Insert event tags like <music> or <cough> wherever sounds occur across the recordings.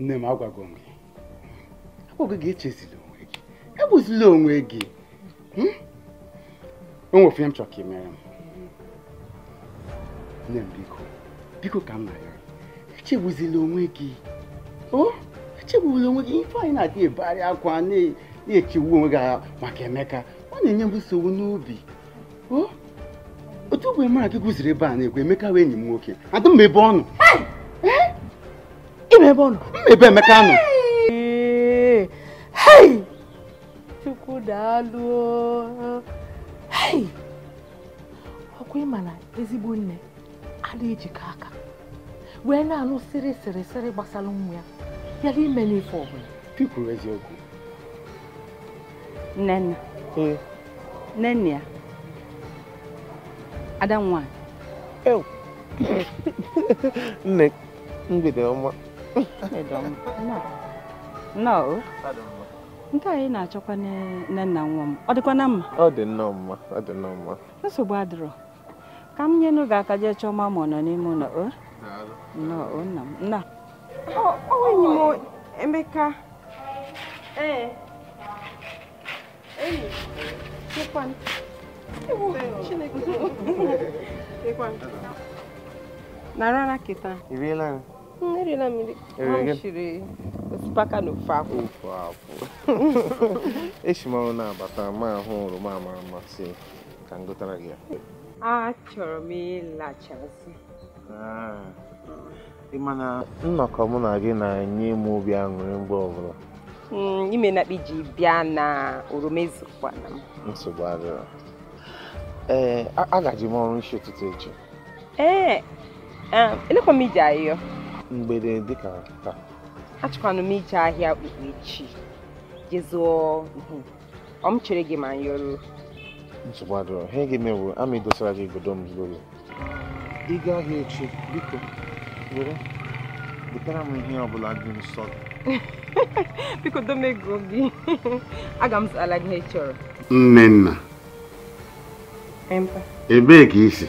nne m agwago m gị agwago gị echezila onwe gị egbuzila onwe gị e hmm? o nwere ofe m chọrọ ka ị mere m nne m biko biko ka m na-arịọ echegbuzila onwe gị o echegbuzila onwe gị ife anyị na-adị ebegharị akwa na-echegbu onwe gị maka Emeka ọ na-enye m nsogbu n'obi o otu ụbọchị mara gị gụziri ebe a na egwu Emeka wee enyi m nwoke adị m ebe ọ nọ ebe ọ nọ mmebe Emeka nọ hei chukwu daalụ hei ọkwa ịma na ezigbo nne ala ejikọ aka wee na-anụ siri siri sịrị gbasara nwa ya bịara ime n'ife ọbụla kwuru eziokwu nnenna nnenne ya ada nwanyị <laughs> nne mgbede ọma They don't. No. No. Nke anyị na-achọkwa nne nna nwa m. Ọ dịkwa dịkwana mma? Ọ dị nnọọ mma. Ọ dị nnọọ mma. Nsogbu adịrọ. Ka m nyenu gị aka jee chọọ ma nọ n'ime ụlọ. Nnọọ nna m. Nna. Ọ enyi m Emeka. Ee. Enyi. kịta. Iriela na mmiri shiri osikapa na ofe akwụ ofe akwụ esi ọrụ na-abata ma ahụ oroma ama amasị ka m gụtara gị ya achọrọ m ịlachasị ah. mana nnọkọ mụ na gị na-enye m obi aṅụrị mgbe ọbụla hmm, ime na ji bịa na oroma ezikwana m nsogbu adịrọ ee eh, agaji m ọrụ isi ụtụtụ echi ee eh, ah, elekwa m iji ahịhịa. mgbede dịka taa Achọkwana m ije ahịa okpukpe echi jezụọ ọ m chere gị ma nyọrọ nsogbu ihe gị mewu ama idosara gị igodo m zuru ị gaa ahịa echi biko were butere m ihe ọbụla dị nsọ <laughs> biko domego gị <laughs> aga m zụtara gị ihe chọrọ nne nna ebee ka isi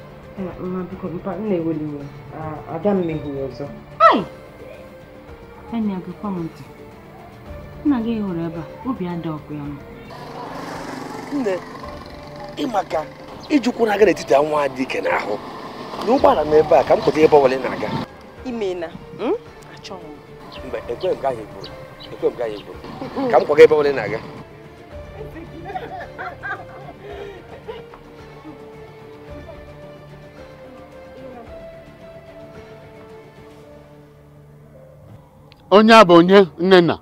ada m mehuru ọzọ enyi gịkwa m ntị nna gị hụrụ ebe a obi ada ọkụ ya nne ịmaka ijukwu na-aga n'etiti nwa dị ike n'ahụ n'ụgbọala m ebe a ka m pụta ebe ọbụla na-aga imena hmm? achọ m mgbe ekwe m gaghị bụrụ ekwe m gaghị bụrụ ka m kwaga ebe ọbụla na-aga onye a bụ onye nnenna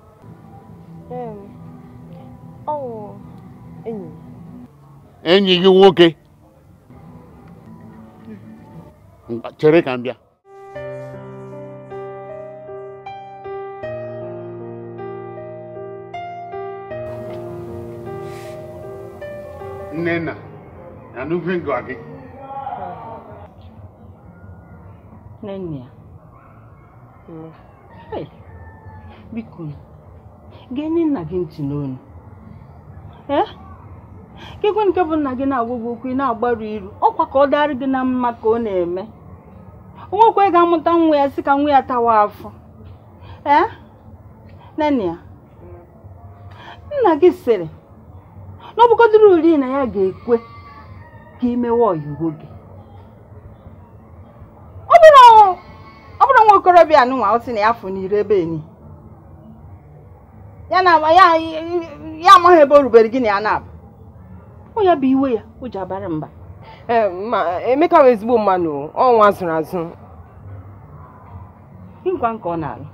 enyi gị nwoke chere ka m bịa nnenna anụve ngọ gị nnenna biko nye nna gị ntị n'onu ekekwe eh? nke bụ nna gị na-agwa okwu ị na-agbaru iru ọkwa ka ọ dịarị gị na mma ka ọ na-eme nwekwe ga-amụta nwa ya sị ka nwa ya tawa afọ ee eh? nene ya nna gị sịrị na ọbụkọdịrị uri na ya ga-ekwe ka imewe oyiwo gị ọ bụrụ nwa okorobịa nụnwa ọ sị na ya fụ n'ire ebe enyi ya na ya ya amaghị ebe o rubere gị na ya na-abụ ọ ya bụ iwe ya o ji abara mba ma Emeka bụ ezigbo mmanụ ọnwa zụrụ azụ nkwa nke ọ na-alụ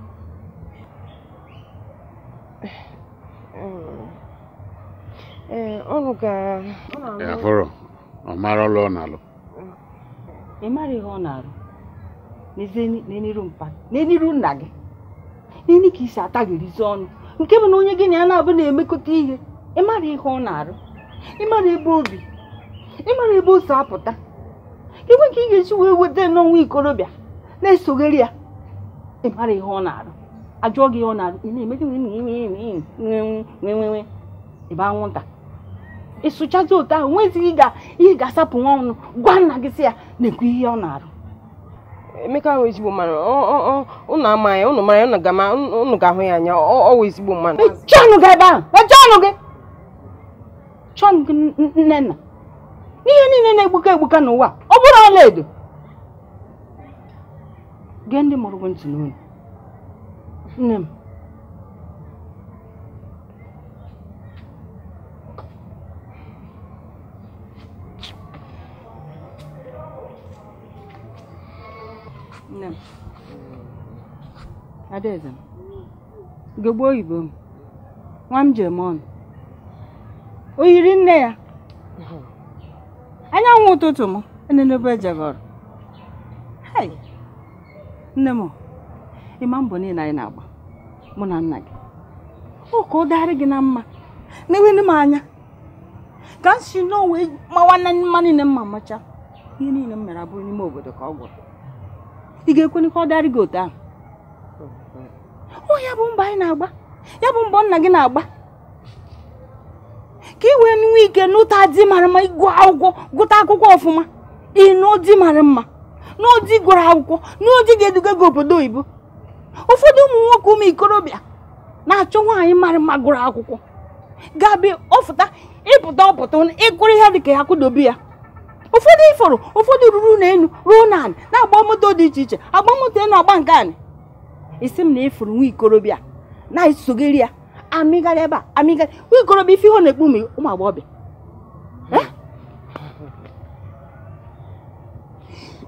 ọrụ gara afọrọ ọ mara ọlụ ọ na-alụ ị mara ihe ọ na-alụ n'ezie n'eniru mpa n'eniru nna gị n'eni ka isi ataghịrizi ọnụ nke bụ na onye gị na ya na-abụ na-emekọta ihe ịmara ihe ọ na-arụ ịmara ebe obi ịmara ebe o si apụta inwe nke ị ga-eji wee weta n'ọnwa ikorobịa na-esogheri ya ịmara ihe ọ na-arụ ajụọ gị ọ na-arụ ị na-eme ebe anwụnta ịsụchazi otu ahụ nwezighị ị ga-asapụ nwa ọnụ gwa nna gị si ya na-ekwu ihe ọ na-arụ emeka ahụ ezigbo mmadụ ụnụ ama ya ụnụ mara ya ụnụ ga-ahụ ya anya ọwụ ezigbo mmadụ chọnụ gị ebe ahụ chọnụ gị chọnụ gị nnenna n'ihe niile na-egbuka egbuka n'ụwa ọ bụrụ ọlaedo gee ndị mụrụ gị ntị n'olu nne m nne m adaeze m gogbo oyibo m nwa m jemon o yiri nne ya anyanwụ ụtụtụ m enenebe ejegọrọ nne m ị ịma mbọ niile anyị na-agba mụ na nna gị ọ ka ọ dịgharị gị na mma na-enweghị m anya ka m si n'onwe mawa nne mma niile mma macha ihe niile m mere abụrụ n'ime obodo ka ọ gwụrụ ị ga-ekwenikwa ọ darị gị otu ahụ ọ oh, ya bụ mba anyị na-agba ya bụ mbọ nna gị na-agba ka ị wee nwe ike n'ụta di mara mma ịgụ akwụkwọ gụta akwụkwọ ọfụma ịnụdi mara mma n'odi gụrụ akwụkwọ n'odi ga-eduga gị obodo oyibo ụfọdụ ụmụ nwoke ụmụ ikorobịa na-achọ nwaanyị mara mma gụrụ akwụkwọ ga-abịa ọfụta ịpụta ọpụta ịkụrụ ihe ka ya kwụdobe ya ụfọdụ ịfọrọ ụfọdụ ruru n'elu ruo na anị na-agba moto dị iche iche agba moto elu agba nke anị isi m na ifuru nwa ikorobịa na-esogeri ya amịgharị ebe a amịgharị nwa ikorobịa ife ihe ọ na-ekpu m ụmụ agbọghọbịa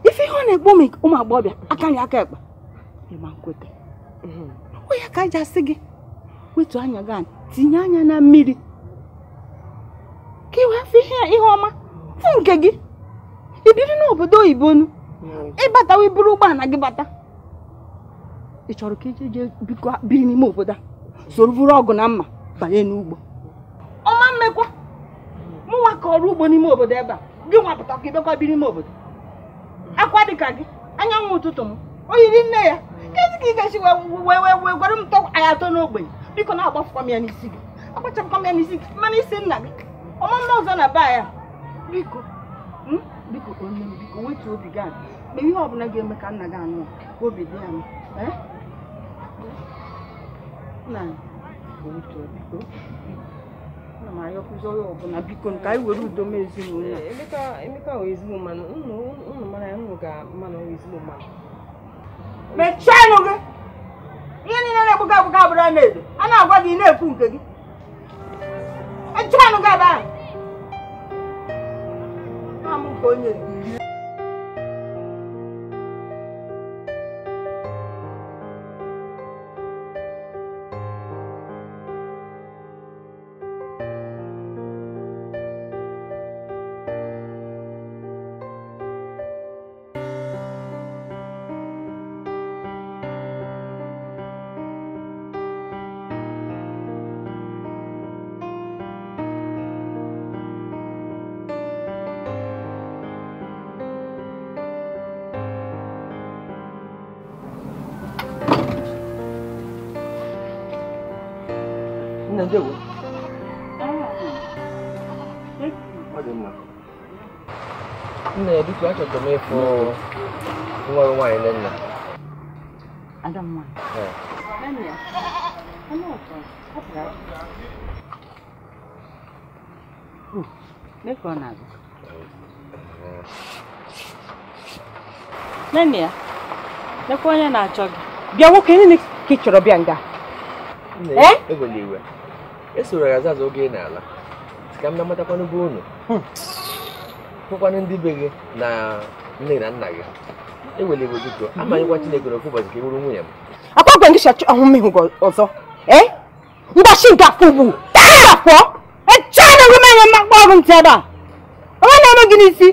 ife ihe ọ na-ekpu m ụmụ agbọghọbịa akarị aka ekpe ịma nkweta onye ka aja sị gị wetu anya gị anyị tinye anya na mmiri ka ị wee fụ ihe ọma fụ nke gị ibiri n'obodo oyibo nu hmm. ịbata wee buru ụgbọala gị bata ị chọrọ ka ije jee biko biri n'ime obodo a soro buru ọgụ na mma banye n'ugbo ọma mmekwa mụnwa ka ọrụ ugbo n'ime obodo ebe a gị nwapụta ka ịbịakwa biri n'ime obodo akwa dịka gị anyanwụ ụtụtụ m oyiri nne ya kedu ka ị ga-esi wee wee gwara m tọ anya atọ n'ogbenye biko na-agbafụkwa m ya n'isi gị agbachapụkwa m ya n'isi gị mana isi nna gị ọma mma ọzọ na be ya biko hmm? biko onye m biko wetuo obi gị ma mgbe ihe ọbụla ga-eme ka nna gị anụ ka obi dị ya eh? nna wetuo biko ana m ayọkụzi onye ọbụla biko ka anyị were udo m ezinụlọ eh, emeka wee ezigbo mmanụ unu mara ya unu ga-amanụ ezigbo mmanụ mechienụ gị ihe niile na-ekwu gị akwụkwọ abụrụ a na-edo a na-agwa gị ị na-ekwu nke gị echienụ gị ebe ahụ 我呢？njegwu nna ya dịka achọtara m ịfụ nwa m na nna nene ya lekwa onye na-achọ gị bịa nwoke nne ka ị chọrọ bịa nga esoro ya azaza oge ị na-ala ka m na-amatakwanụ bụ unu hmm. hụkwanụ ndị be gị na nne na nna gị ewele iwe biko amanyekwa chineke na ofu ụbọchị ka ị bụrụ nwunye m akpagwe gị chachi ahụ mmehụ ọzọ ee eh? mgbachi nke afọ ugwu ya pụọ echana gị menye mmakpa ọrụ ntị ebe a onwe na-eme gị n'isi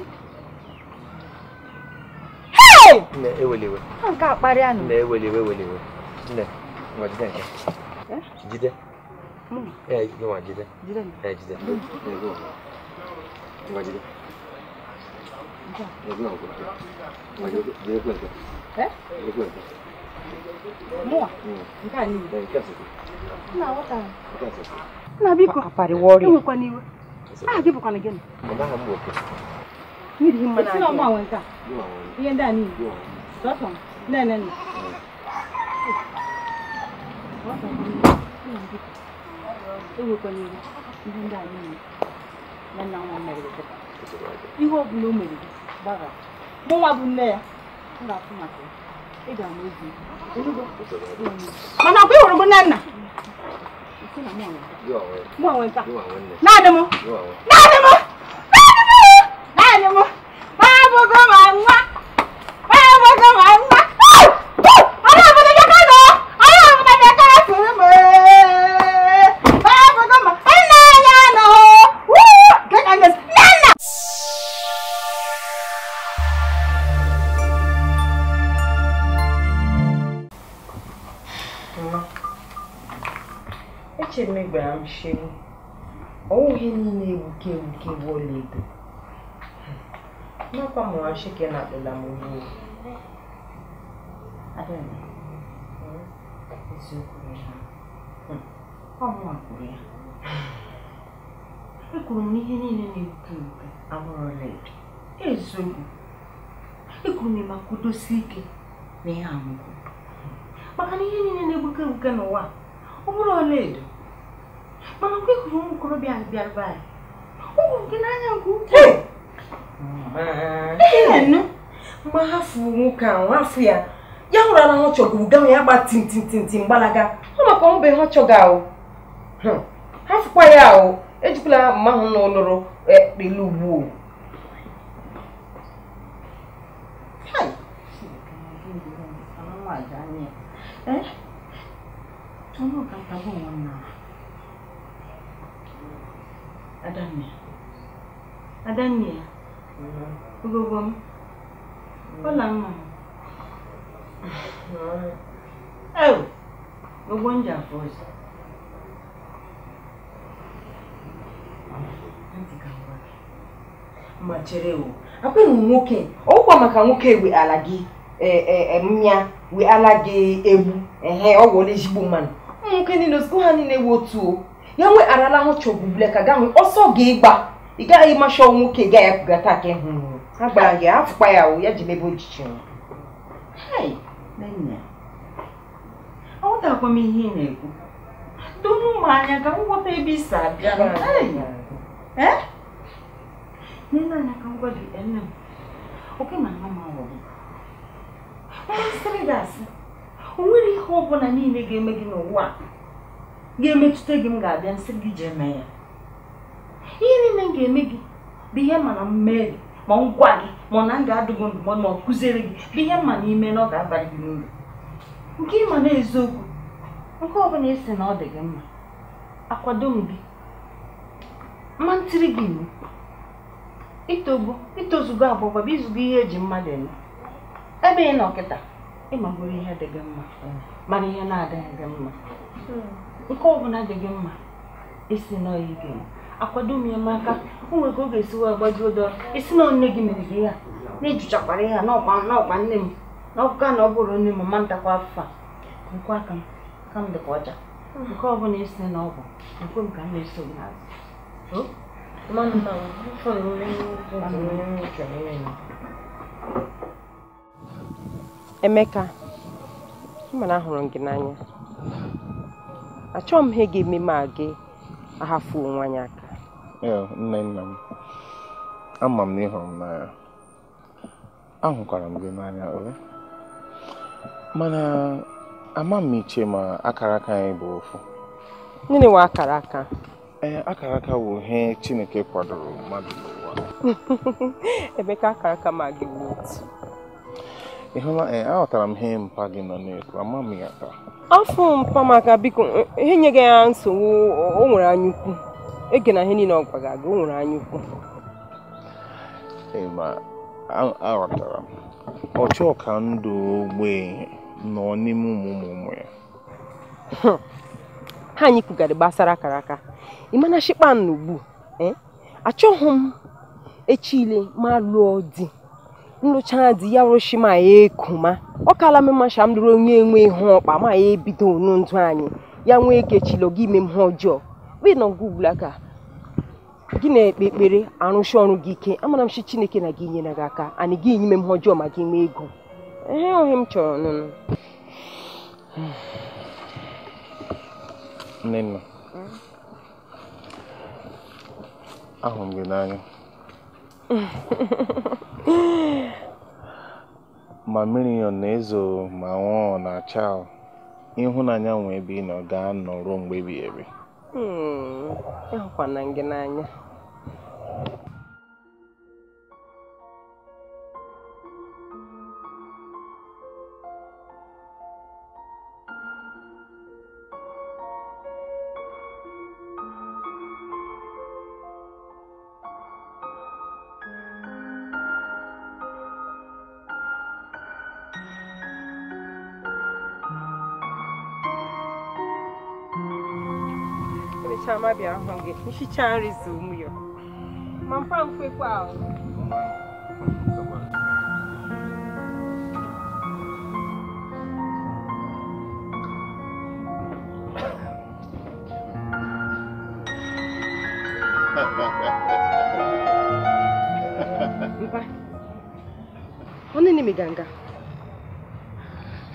eweliwe nke akparịa na eweliwe eweliwe eh? jide Mami. Eh, goma gida. Gida ne. Eh, gida. Eh, goma. Goma gida. Ya goma goma. Goma gida. Gida goma gida. Eh? Gida goma gida. Mwa. Nke a niile. Nke a sịkwụ. Nna aghọta. Nke a sịkwụ. Nna biko. Akpari wọrị. Enwekwana iwe. Aha gị bụkwana gịnị? Mama ha m nwoke. Mmiri hi mmanụ anyị. Esi na nke a. Ihe ndị a niile. Sọsọ. Nne nne nne. Thank you ewu kwenye ihe ndị a niile na nna nwa mere ihe ọ bụla o mere gbara mụnwa bụ nne ya m ga-afụ maka ya ị ga-ama ozi mana ọkwa ịhụrụ m nne nna naanị m naanị m naanị m naanị m abụgo m Corre, nego, que, que bolido. Não, como eu na que nada da mulher. Adana. Isso eu corri. Como eu corri? Eu corri, nego, que bolido. Amor, leite. Isso. Eu corri, ike Maka na ihe niile na-egbuke egbuke n'ụwa, ọ bụrụ edo. mana mgbe ị hụrụ ụmụ okorobịa bịara be anyị ụmụ gị n'anya nke ukwuu ma ha fụrụ nwoke ahụ hafụ ya ya hụrụ na ha ga gawa ya gba tintintintin gbalaga ọ maka ọmụbe ha ahụ ha fụkwa ya ahụ ejikwala mma ahụ na e ekpele Adanne. Adanne. m. Ọla m. Ewu. m ji m ọzọ. Ma nwoke. maka nwoke we ala gị e, e, e, ala gị egbu. Ehe, ọ ezigbo mmanụ. Ụmụ nwoke niile, osikwa ha niile ewu otu yanwe arala ho chobule ka gahu oso ge gba iga yi ma sho nwoke ga ya kugata ke hu agba ya afukpa ya o ya jimebe ojichi hey nenya awotakwa m ihe ị na-ekwu donu m anya ka nghọta ebe isi abịa nne anya ka ngwa gị nne m oke na nwa m awọgị mmasịrị gị asị o nwere ihe ọ bụla niile ga-eme gị n'ụwa a ga-emetụta gị m ga-abịa nsị gị jee mee ya ihe niile m ga-eme gị bụ ihe mana m gị ma m gwa gị ma ọ na m ga ndụmọdụ ma ọ kụziere gị bụ ihe mma na ime na ọ ga-abalị gị n'uru nke ịma na eziokwu nke ọ bụla esi na ọ dị gị mma akwado m gị mma ntiri gị iwu itogbu itozugo agbagba bụ izugo ihe eji mmadụ eme ebe ị nọ kịta ịmagoro ihe dị gị mma mana ihe na-adịghị gị mma nke ọbụla dị gị mma isi nọ ya ike akwado m ya maka o nwere ka ọ ga-esi wee gbaji ụdọ isi na nne gị mere gị ya na-ejuchakwara ya n'ọkpa nne m na ọkụka na ọ bụrụ nne m ma ntakwa afọ a nkwa aka m ka m dịkwa ọcha nke ọbụla isi na ọgwụ nkwe m ka m na-eso n'azụ Emeka, mana ahụrụ m gị n'anya Achọ m ihe ga-eme m a gị ahafuo onwe anyị aka nne nna m ama m na ị hụrụ m n'anya ahụkwara m gị n'anya mana ama m iche ma akara aka anyị bụ ofu gịnị nwa akara aka ee akara aka bụ ihe chineke kwadoro mmadụ n'ụwa <laughs> ebe ka akara aka ma gị bụ otu ị hụla ee aghọtara m ihe mpa gị nọ n'efu ama m ya taa afọ mpamaka maka biko ihe enyeghị ya nsogbu o nwere anyaukwu ege na ihe niile ọ gị o nwere ukwu aghọtara ọchọka ndụ ogbe nọ n'ime ụmụ ụmụ ụmụ ya <laughs> ha anyị gbasara akara aka ịmana shikpan ugbu achọghị m echile ma lụọ di nlụcha dị ya rụchi ma ya ekuma ọ kala m masha m lụrụ onye nwe ihu ọkpa ma ya ebido onu ndụ anyị ya nwee kechilo gị ime ihe ọjọọ aka gị na-ekpe ekpere arụsi ọrụ gị ike amara m shi chineke na gị nyere gị aka anyị gị ime ihe ọjọọ ma gị nwee ego ihe ohe m chọrọ nụnụ m gị n'anya <laughs> ma Miriam na-ezo ma nwụọ na Chao, ịhụnanya nwe ebe ị nọ ga-anọ ruo mgbe ebighị ebi. Hmm, ịhụkwana ngị n'anya. hichaa mmadụ ahụ gị nhicha nri zo ụmụ ya ma mpa mfekwa ahụ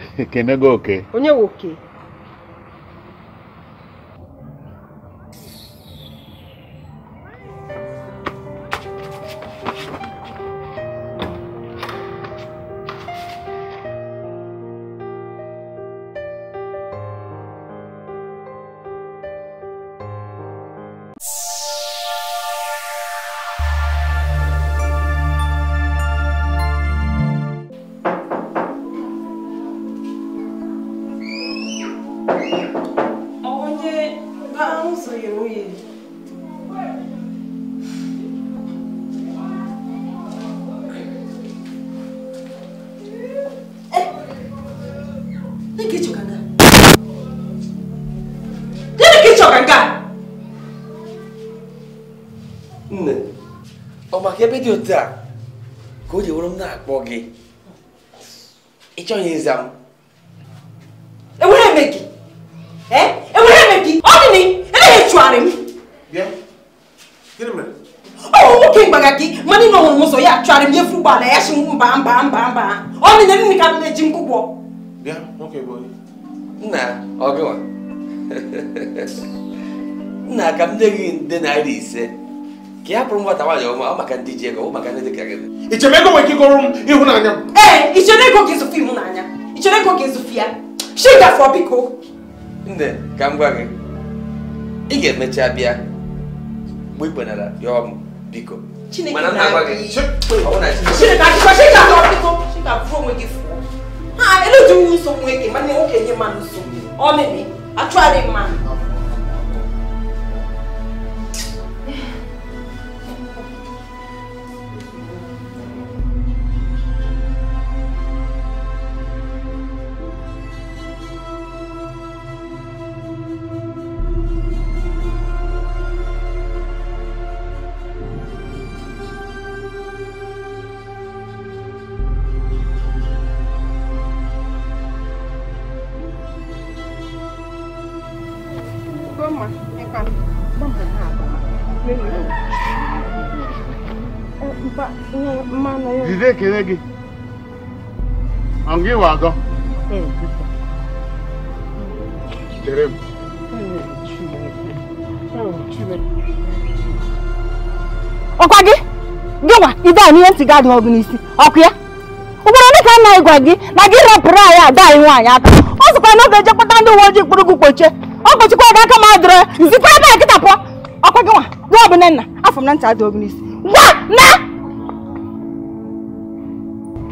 <laughs> Onye ebe dị otu a ka o ji were m na-akpọ gị ị chọghị ịza m enwere eme gị enwere eme gị ọ dị na emeghị echugharị m ọ nwoke mgbagha gị mana ị nọnwụrụ ụzọ ya chụgharị m nyefe ụgbọala ya si mba mba mba mba ọ dị na nne ka m na-eji nkwụkwọ nna ọgịwa <laughs> nna ka m ka ya bụrụ nwata nwaanyị ọma ọ maka ndị ji ego ọ maka ndị dị ka gị ego nwere ike ịgọrọ m ịhụnanya m ee ichemego ka ịzụfụ ịhụnanya ichemego ka ịzụfụ ya shi shigafọ biko nne ka m gwa gị ị ga-emecha bịa mgbe ị kpenara ya ọmụ biko mana nna gwa gị ha elejighi nsogbu eke mana nwoke nye mmadụ nsogbu ọ mebe achụgharị mmadụ ekele gị ọ wa agọ ọkwa gị gịnwa ibe a n'ihe ntị gị adịghị ọgụ n'isi ọkụ ya ugboro ole ka nna gwa gị na gị rapụrụ anyị ada anyị nwaanyị aka ọ sịkwa na ọ ga-eje kpọta ndị uwe ojii kpụrụ gị kpochie ọ kpochikwa gị aka ma adịrọ ya zikwa ebe a kịta pụọ ọkwa gịnwa gwa ọ bụ nne nna afọ m na ntị adịghị ọgụ n'isi gwa na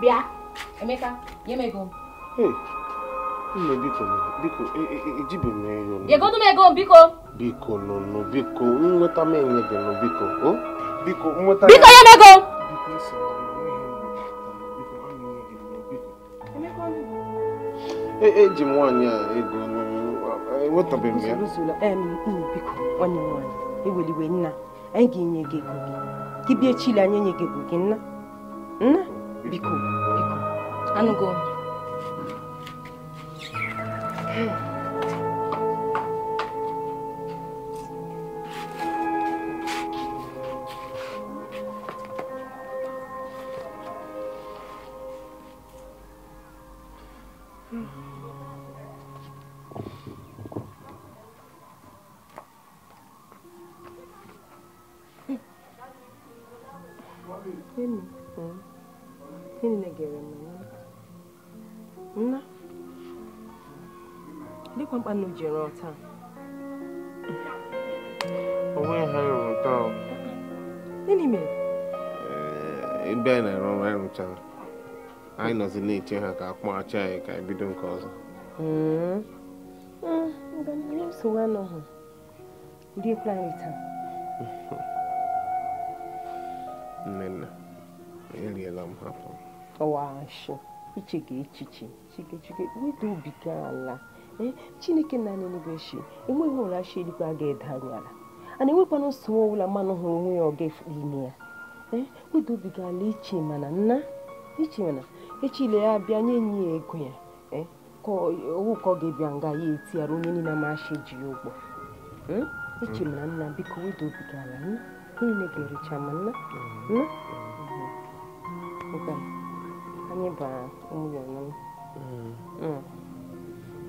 bịa Emeka nye m ego nne biko biko e, e, e, ejibe egodu m ego biko biko nụnụ biko m enye gị biko biko nweta biko m ego eji m nwaanyị a ego eweliwe nna anyị ga gị ego gị gị bịa chile anyị enye ego 미코 미코 안 오고 ọkwa mkpa nnu ji rụọ taa gịnị mere ebe a na ere ọrụ anyị anyị nọzi na-eche ha ka akpọghachi anyị ka anyị bido nke ọzọ hmm. hmm, nnenna eriela m hapụ iche ga echiche chikechike chiga wedo obi gị ala ee chineke nanị anyị n'ebe enweghị ụra chi eluigwe a ga-eda anyị ala ana enwekwana nsogbu ọbụla mmanụ hụrụ onwe ya ọga efu ime ya ee eh, wedobiga ala iche mana nna iche mana echile ya bịa nye enyi ya ego ya eh, owu ka ọ ga-ebịa nga ya etiara onye niile amachi ji ya ụgwọ eh, iche mana nna biko wedobiga ala niile ga-erecha ma nna nna mm-hmm. anyị bara ụmụ ya na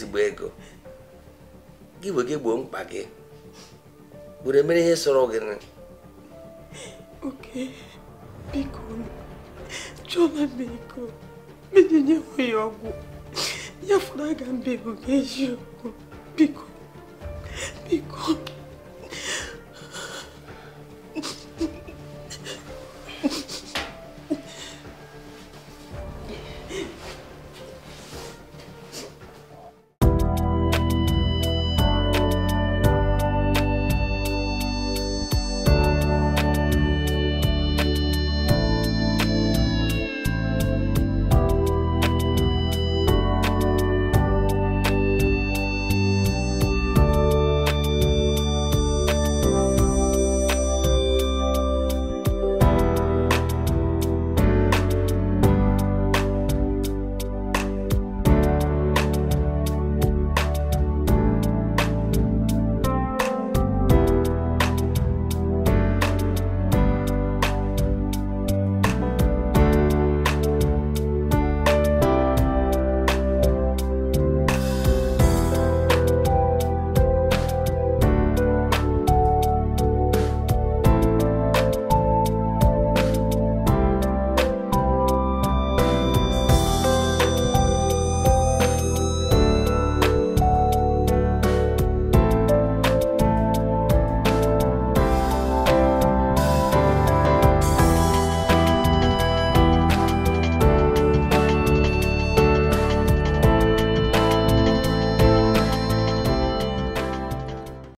ezigbo ego gị bụ gị gboo mkpa gị were emere ihe sọrọ gị oke biko chọma biko menyenye ya ọgwụ ya fọrọ aga mbe bụ eziokwu biko biko